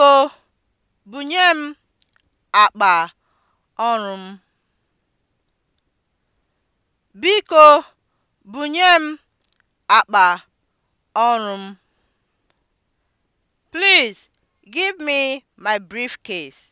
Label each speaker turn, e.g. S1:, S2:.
S1: Biko bunye m akpa ọrụ m. Biko bunye m akpa ọrụ m. Please give me my briefcase.